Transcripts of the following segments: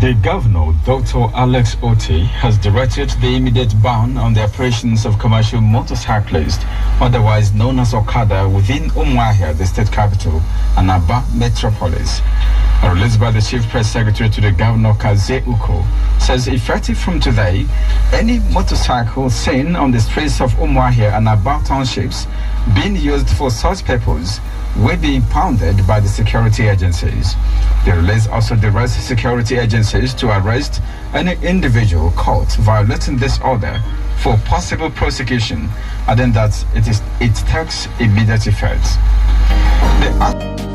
The governor, Dr. Alex Otie, has directed the immediate ban on the operations of commercial motorcyclists, otherwise known as Okada, within Umuahia, the state capital, and Aba metropolis released by the Chief Press Secretary to the Governor Kaze Uko, says effective from today, any motorcycle seen on the streets of Umwahia and about townships being used for such purpose will be impounded by the security agencies. The release also directs security agencies to arrest any individual caught violating this order for possible prosecution, adding that it, is, it takes immediate effect. The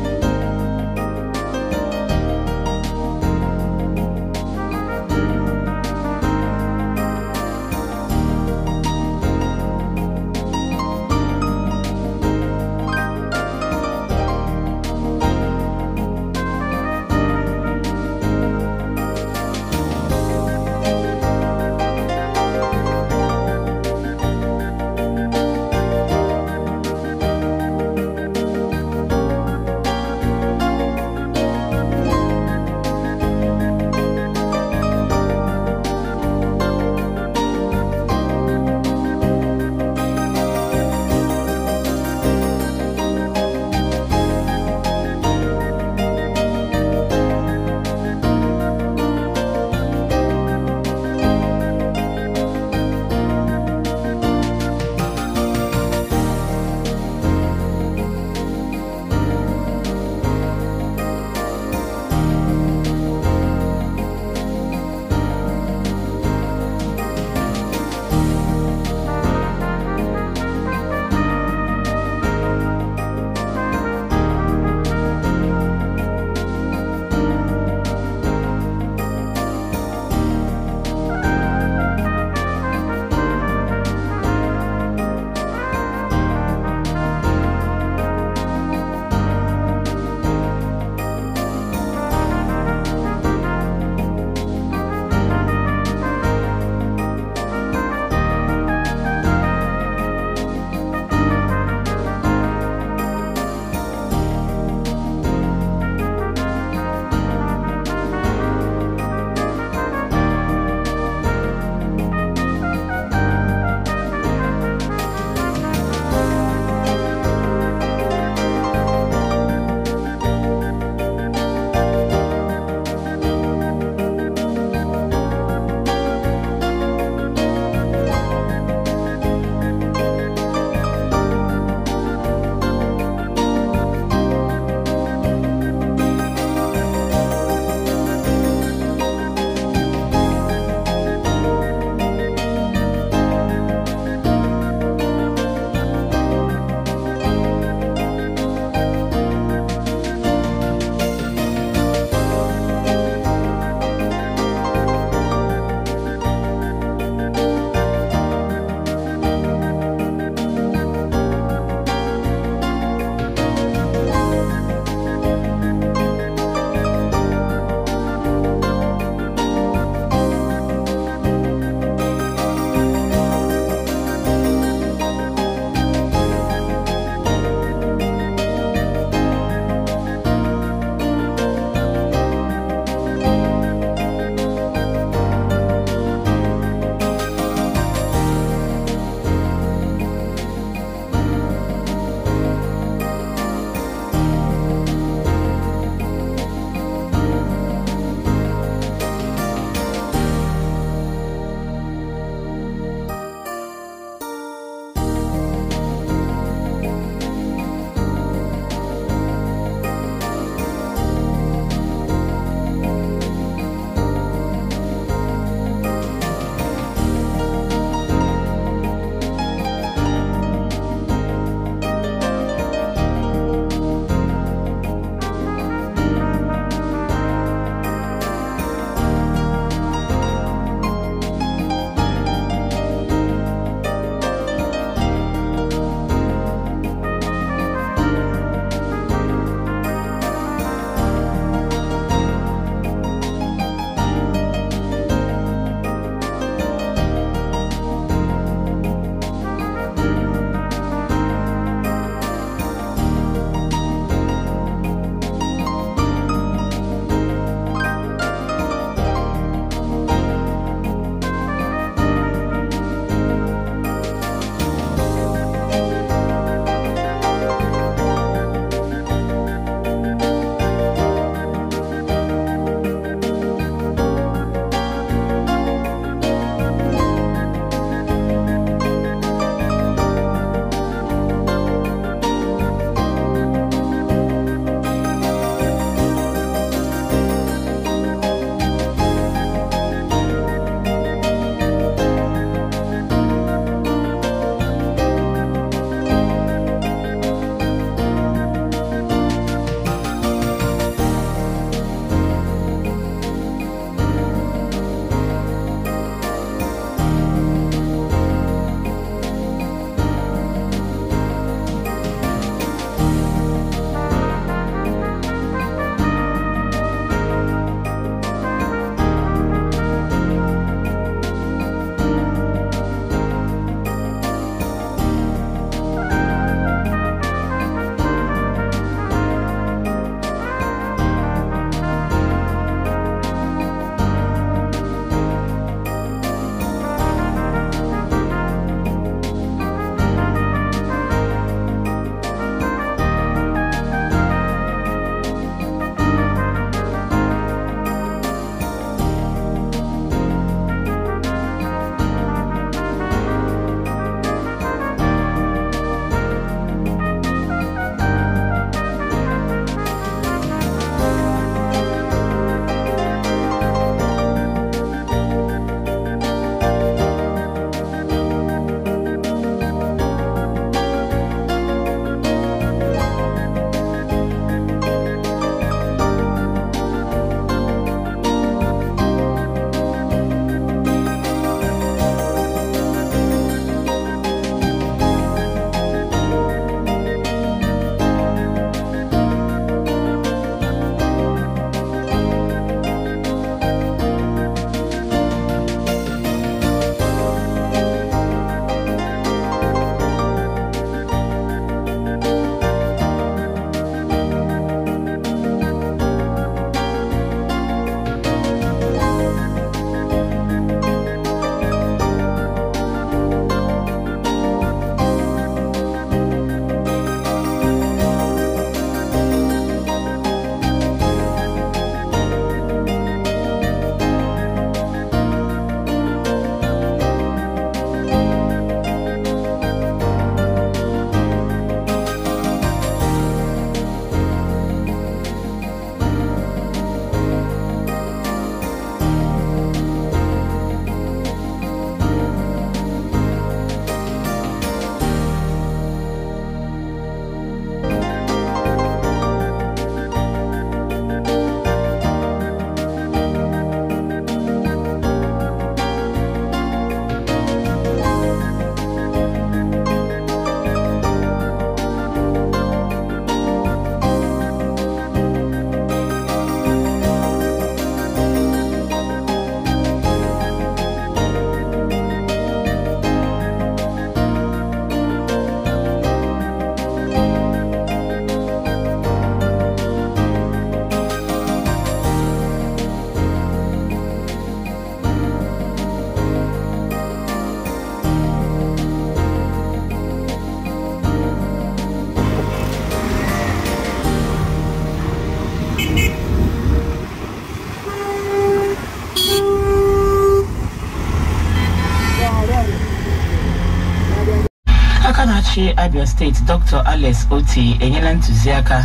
ọchị abia steeti dr alex oti enyela ntụziaka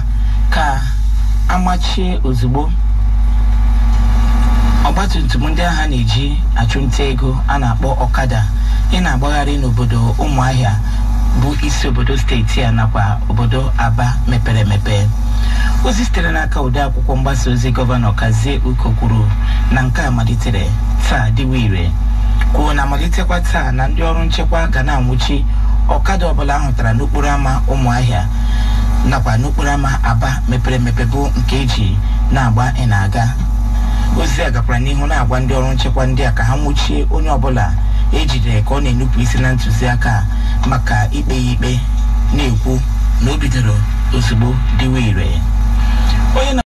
ka amachie ozugbo ọgbatumtum ndị agha na-eji achụnta ego a na-akpọ ọkada ị na-agbagharị n'obodo ụmụahịa bụ isi obodo steeti a nakwa obodo aba mepere emepe ozi sitere n'aka ode akwụkwọ mgbasa ozi gọvanọ kazie uko kwuru na nke a malitere taa dịwa ire kwuo na amalitekwa taa na ndị ọrụ nchekwa ga na-anwụchi ọkada ọbụla ahụtara n'okporo ámá ụmụahịa nakwa n'okporo ámá aba mepere emepe bụ nke eji na-agba ị na-aga ozi a gakwara n'ihu na-agwa ndị ọrụ nchekwa ndị a ka ha nwụchie onye ọbụla ejidere ka ọ na-enupụ isi na ntụziaka maka ikpe ya ikpe na-ekwu na o bidoro ozugbo dịwa ire